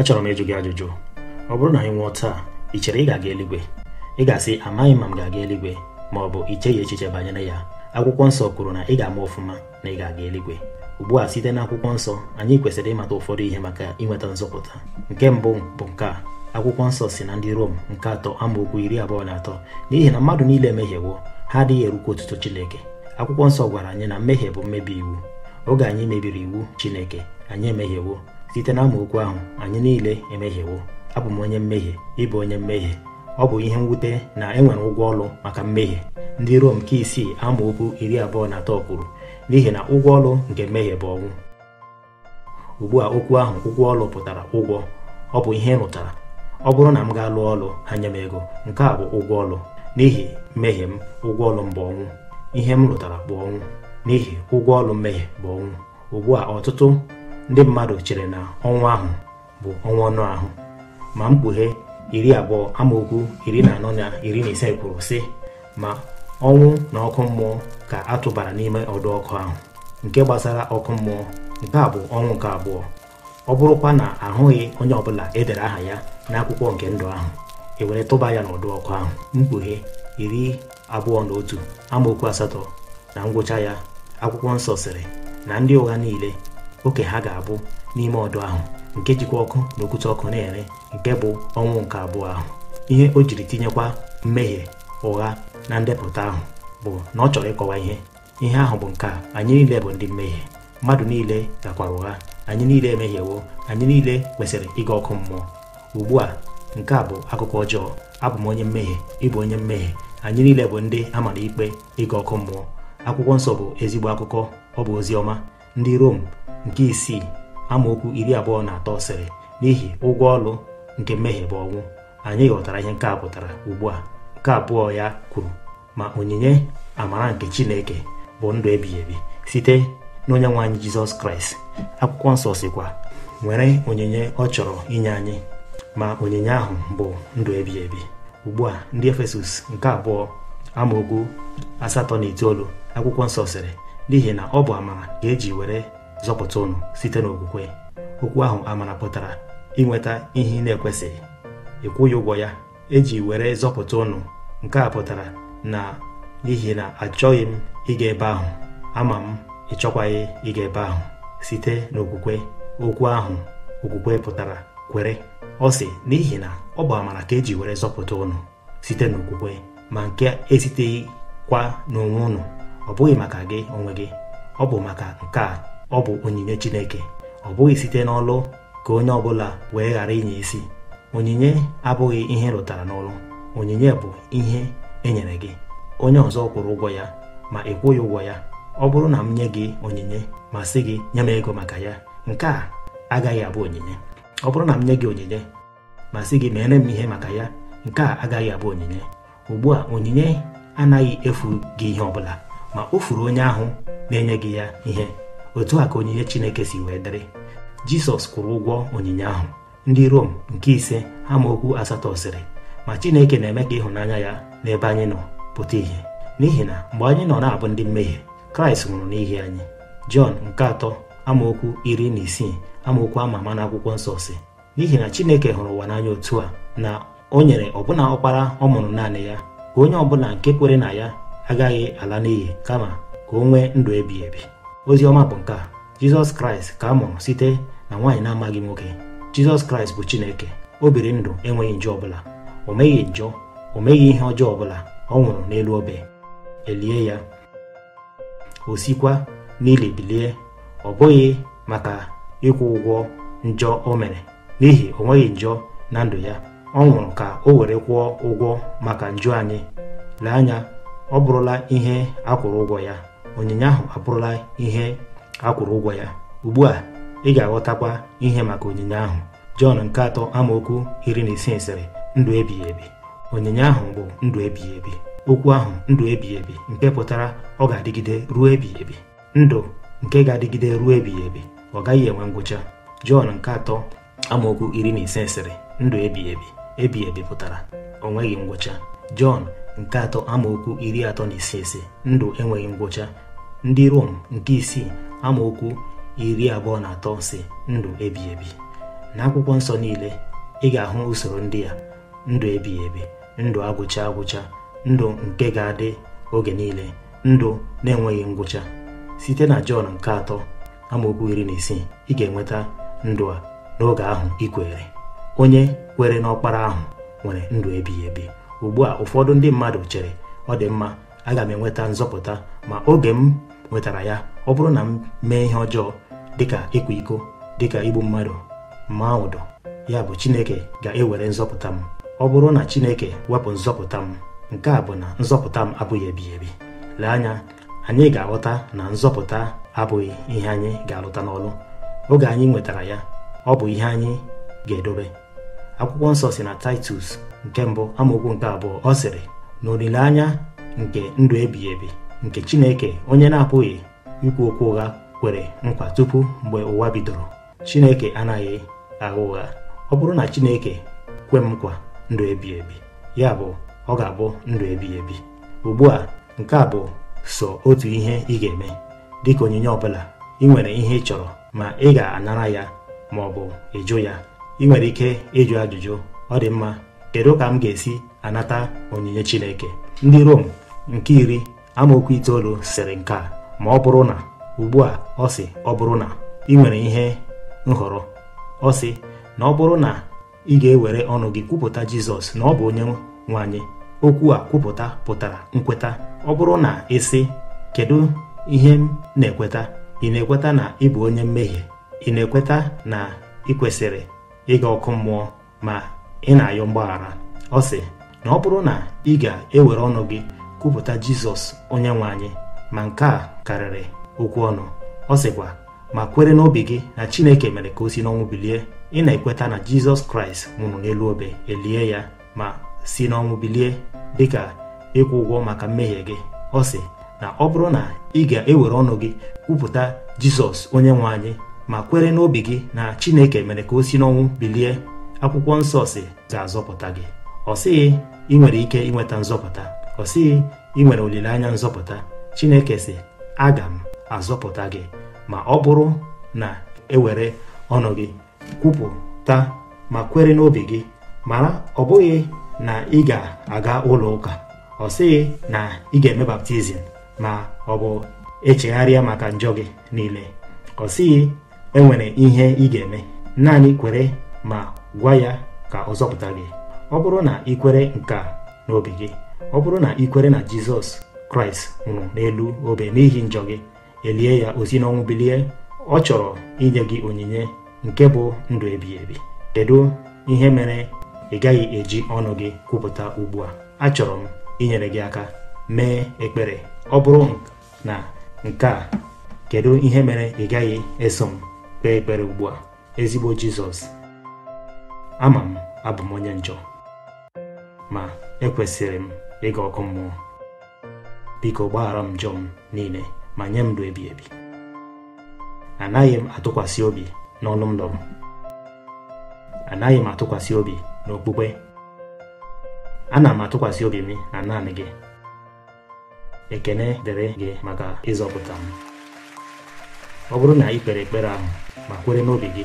achọrọ m ịjụ gị ajụjụ ọ bụrụ na anyị nwụọ taa ị chere ị ga-aga eluigwe ị ga-asị amaghị ma m ga-aga eluigwe ma ọ bụ icheghị echiche banyere ya akwụkwọ nsọ kwuru na ị ga-ama ọfụma na ị ga-aga eluigwe ugbu a site na akwụkwọ nsọ anyị kwesịrị ịmata ụfọdụ ihe maka inweta nzọpụta nke mbụ bụ nke a akwụkwọ nsọ si na ndị Rom nke atọ amaokwu iri abụọ na atọ n'ihi na mmadụ niile emehiewo ha adịghị erukwa otuto Chineke akwụkwọ nsọ gwara anyị na mmehie bụ mmebi iwu oge anyị mebiri iwu Chineke anyị emehiewo site na amaokwu ahụ anyị niile emehiewo abụ m onye mmehie ịbụ onye mmehie ọ bụ ihe mwute na enwere ụgwọ ọlụ maka mmehie ndị Rom nke isii amaokwu iri abụọ na atọ kwuru n'ihi na ụgwọ ọlụ nke mmehie bụ ọnwụ ugbu a okwu ahụ ụgwọ ọlụ pụtara ụgwọ ọ bụ ihe rụtara ọ bụrụ na m ga-alụ ọlụ anya m ego nke a bụ ụgwọ ọlụ n'ihi mmehie m ụgwọ ọlụ m bụ ọnwụ ihe m rụtara bụ ọnwụ n'ihi ụgwọ ọlụ mmehie bụ ọnwụ ugbu a ọtụtụ ndị mmadụ chere na ọnwa ahụ bụ ọnwa ọnụ ahụ ma mkpughe iri abụọ amaokwu iri na anọ na iri na ise kwuru sị ma ọnwụ na ọkụ mmụọ ka atụbara n'ime ọdụ ọkụ ahụ nke gbasara ọkụ mmụọ nke a bụ ọnwụ nke abụọ ọ bụrụkwa na ahụghị onye ọbụla edere aha ya n'akwụkwọ nke ndụ ahụ e were tụba ya n'ọdụ ọkụ ahụ mkpughe iri abụọ na otu amaokwu asatọ na ngwụcha ya akwụkwọ nsọ sịrị na ndị ụgha niile oke ha ga-abụ n'ime ọdụ ahụ nke jikwa ọkụ na okwute ọkụ na-ere nke bụ ọnwụ nke abụọ ahụ ihe o jiri tinyekwa mmehie ụgha na ndepụta ahụ bụ na ọ chọrọ ịkọwa ihe ihe ahụ bụ nke a anyị niile bụ ndị mmehie mmadụ niile gakwara ụgha anyị niile emehiewo anyị niile kwesịrị ịga ọkụ mmụọ ugbu a nke a bụ akụkọ ọjọọ abụ m onye mmehie ịbụ onye mmehie anyị niile bụ ndị a mara ikpe ịga ọkụ mmụọ akwụkwọ nsọ bụ ezigbo akụkọ ọ bụ ozi ọma ndị Rom nke isii amaokwu iri abụọ na atọ sịrị n'ihi ụgwọ ọlụ nke mmehie bụ ọnwụ anyị ghọtara ihe nke a pụtara ugbu a nke abụọ ya kwuru ma onyinye amara nke Chineke bụ ndụ ebighị ebi site n'onye nwe anyị Jizọs Kraịst akwụkwọ nsọ sikwa nwere onyinye ọ chọrọ inye anyị ma onyinye ahụ bụ ndụ ebighị ebi ugbu a ndị Efesọs nke abụọ amaokwu asatọ na itoolu akwụkwọ nsọ sịrị n'ihi na ọ bụ amara ka eji were zọpụta ụnụ site n'okwukwe okwu ahụ amara pụtara inweta ihe ị na-ekwesịghị ịkwụghị ụgwọ ya eji were zọpụta ụnụ nke a pụtara na n'ihi na achọghị m ịga ebe ahụ ama m ịchọkwaghị ịga ebe ahụ site n'okwukwe okwu ahụ okwukwe pụtara kwere ọ sị n'ihi na ọ bụ amara ka eji were zọpụta ụnụ site n'okwukwe ma nke esiteghị kwa n'onwe ụnụ. ọ bụghị maka gị onwe gị ọ bụ maka nke a ọ bụ onyinye Chineke ọ bụghị site n'ọlụ ka onye ọbụla wee ghara inye isi onyinye abụghị ihe rụtara n'ọlụ onyinye bụ ihe e nyere gị onye ọzọ kwụrụ ụgwọ ya ma ị kwụghị ụgwọ ya ọ bụrụ na m nye gị onyinye ma sị gị nye m ego maka ya nke a agaghị abụ onyinye ọ bụrụ na m nye gị onyinye ma sị gị mere m ihe maka ya nke a agaghị abụ onyinye ugbu a onyinye anaghị efu gị ihe ọbụla ma o furu onye ahụ na-enye gị ya ihe otu a ka onyinye Chineke si wee dịrị Jisọs kwụrụ ụgwọ onyinye ahụ ndị Rom nke ise amaokwu asatọ sịrị ma Chineke na-eme ka ịhụnanya ya n'ebe anyị nọ pụta ihe n'ihi na mgbe anyị nọ na-abụ ndị mmehie Kraịst nwụrụ n'ihi anyị Jọn nke atọ amaokwu iri na isii amaokwu ama ama n'akwụkwọ nsọ si n'ihi na Chineke hụrụ ụwa n'anya otu a na o nyere ọbụna ọkpara ọ mụrụ naanị ya ka onye ọbụla nke kwere na ya agaghị ala n'iyi kama ka o nwee ndụ ebighị ebi ozi ọma bụ nke a jizọs kraịst ka a mụrụ site na nwaanyị na-amaghị nwoke jizọs kraịst bụ chineke o biri ndụ enweghị njọ ọbụla o meghị njọ o meghị ihe ọjọọ ọbụla ọ nwụrụ n'elu obe elie ya o sikwa n'ili bilie ọ bụghị maka ịkwụ ụgwọ njọ o mere n'ihi o nweghị njọ na ndụ ya ọ nwụrụ ka o were kwụọ ụgwọ maka njọ anyị lee anya ọ bụrụla ihe akwụrụ ụgwọ ya onyinye ahụ abụrụla ihe akwụrụ ụgwọ ya ugbu a ị ga-aghọtakwa ihe maka onyinye ahụ Jọn nke atọ amaokwu iri na isii sịrị ndụ ebighị ebi onyinye ahụ bụ ndụ ebighị ebi okwu ahụ ndụ ebighị ebi nke pụtara ọ ga-adịgide ruo ebighị ebi ndụ nke ga-adịgide ruo ebighị ebi ọ gaghị enwe ngwụcha Jọn nke atọ amaokwu iri na ise sịrị ndụ ebighị ebi ebighị ebi pụtara o nweghị ngwụcha Jọn nke atọ amaokwu iri atọ na ise ise ndụ enweghị ngwụcha ndị Rom nke isii amaokwu iri abụọ na atọ si ndụ ebighị ebi na akwụkwọ nsọ niile ị ga-ahụ usoro ndị a ndụ ebighị ebi ndụ agwụcha agwụcha ndụ nke ga-adị oge niile ndụ na-enweghị ngwụcha site na Jọn nke atọ amaokwu iri na isii ị ga-enweta ndụ a n'oge ahụ ikwere onye kwere n'ọkpara ahụ nwere ndụ ebighị ebi ugbu a ụfọdụ ndị mmadụ chere ọ dị mma aga m enweta nzọpụta ma oge m nwetara ya ọ bụrụ na m mee ihe ọjọọ dịka ịkwa iko dịka igbu mmadụ ma ụdọ ya bụ Chineke ga-ewere nzọpụta m ọ bụrụ na Chineke wepụ nzọpụta m nke a bụ na nzọpụta m abụghị ebighị ebi lee anya anyị ga-aghọta na nzọpụta abụghị ihe anyị ga-alụta n'ọlụ oge anyị nwetara ya ọ bụ ihe anyị ga-edobe akwụkwọ nsọ si na titus nke mbụ amaokwu nke abụọ ọ sịrị na olileanya nke ndụ ebighị ebi nke chineke onye na-apụghị ikwu okwu ụgha kwere nkwa tupu mgbe ụwa bidoro chineke anaghị agha ụgha ọ bụrụ na chineke kwe m nkwa ndụ ebighị ebi ya bụ ọ ga-abụ ndụ ebighị ebi ugbu a nke a bụ so otu ihe ị ga-eme dịka onyinye ọ bụla ị nwere ihe ị chọrọ ma ị ga-anara ya ma ọ bụ ịjụ ya ị nwere ike ịjụ ajụjụ ọ dị mma kedu ka m ga-esi anata onyinye Chineke ndị Rom nke iri amaokwu itoolu sịrị nke a ma ọ bụrụ na ugbu a ọ sị ọ bụrụ na ị nwere ihe nhọrọ ọ sị na ọ bụrụ na ị ga-ewere ọnụ gị kwupụta Jizọs na ọ bụ onye nwanyị okwu a kwupụta pụtara nkweta ọ bụrụ na ịsị kedu ihe m na-ekweta ị na-ekweta na ị bụ onye mmehie ị na-ekweta na ị kwesịrị ịga ọkụ mmụọ ma ị na-ayọ mgbaghara ọ sị na ọ bụrụ na ị ga-ewere ọnụ gị kwupụta jizọs onye nwe anyị ma nke a karịrị okwu ọnụ ọ sịkwa ma kwere n'obi gị na chineke mere ka o si n'ọnwụ bilie ị na-ekweta na jizọs kraịst nwụrụ n'elu obe elie ya ma si n'ọnwụ bilie dịka ịkwụ ụgwọ maka mmehie gị ọ sị na ọ bụrụ na ị ga-ewere ọnụ gị kwupụta jizọs onye nwe anyị ma kwere n'obi gị na Chineke mere ka o si n'ọnwụ bilie akwụkwọ nsọ si ga-azọpụta gị ọ sịghị ị nwere ike inweta nzọpụta ọ sịghị ị nwere olileanya nzọpụta Chineke si aga m azọpụta gị ma ọ bụrụ na ewere ọnụ gị kwupụta ma kwere n'obi gị mara ọ bụghị na ị ga-aga ụlọ ụka ọ sịghị na ị ga-eme baptizim ma ọ bụ echegharịa maka njọ gị niile ọ sịghị enwere ihe ị ga-eme naanị kwere ma gwa ya ka ọ zọpụta gị ọ bụrụ na ị kwere nke a n'obi gị ọ bụrụ na ị kwere na Jizọs Kraịst nwụrụ n'elu obe n'ihi njọ gị elie ya ozi n'ọnwụ bilie ọ chọrọ inye gị onyinye nke bụ ndụ ebi ebi kedu ihe mere ị gaghị eji ọnụ gị kwupụta ugbu a achọrọ m inyere gị aka mee ekpere ọ bụrụ na nke a kedu ihe mere ị gaghị eso m kpee ekpere ugbua ezigbo jizọs ama m abụ m onye njọ ma ekwesịrị m ịga ọkụ mmụọ biko gbaghara m njọ m niile ma nye m ndụ ebi ebi anaghị m atụkwasị obi n'ọnụ ndụ m anaghị m atụkwasị obi n'okpukpe ana m atụkwasị obi m na naanị gị ekene dịrị gị maka ịzọpụta m ọ bụrụ na ị kpere ekpere ahụ ma kwere n'obi gị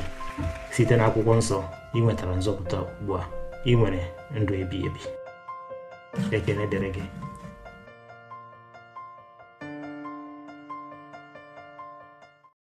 site n'akwụkwọ nsọ ị nwetara nzọpụta ugbu a ị nwere ndụ ebighị ebi ekele dịrị gị